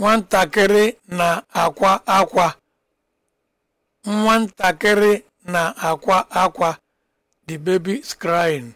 nwatakịrị na-akwa akwa nwatakịrị na-akwa akwa the baby is crying